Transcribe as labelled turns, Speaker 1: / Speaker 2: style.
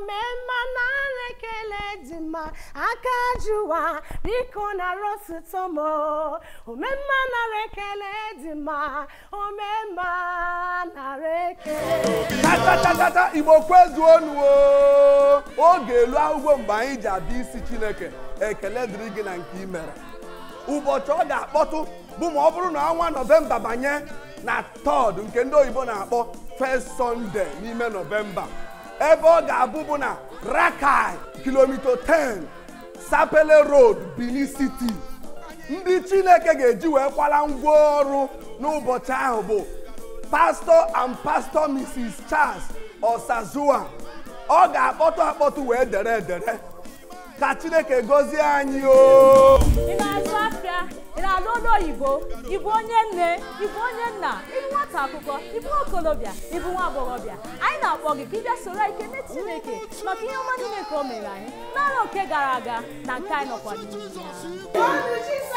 Speaker 1: omemma na dị mma aka jụwa biko nara na omemma nara ekele dị mma omemma nara ekele
Speaker 2: tatatata igbo kwezuonuo oge elu ahụgwọ mgbe anyị ji abịa isi chineke ekele dịrị gị na nke imere ụbọchị ọ ga-akpọtụ bụ ma ọ bụrụ na ọnwa nọvemba banye na Tọọdụ nke ndị oyibo na-akpọ first sọnde n'ime nọvemba ebe ọ ga-abụ bụ na rakai kilomita 10 sapele road benin city ndị chineke ga-eji wee kwala ngwaọrụ n'ụbọchị ahụ bụ pastor and pastor mrs charles osazua ọ ga-akpọtụ akpọtụ wee dere edere ka chineke gọzie anyị o
Speaker 3: igbo ịbụ onye nne ịbụ onye nna ịbụ nwata akwụkwọ ịbụ okolobịa ịbụ nwa agbọghọbịa anyị na-akpọ gị ka ịbịa soro anyị kene chineke maka ihe ọma niile nke o mere anyị n'ala oke gara aga na nke anyị nọkwa n'ihu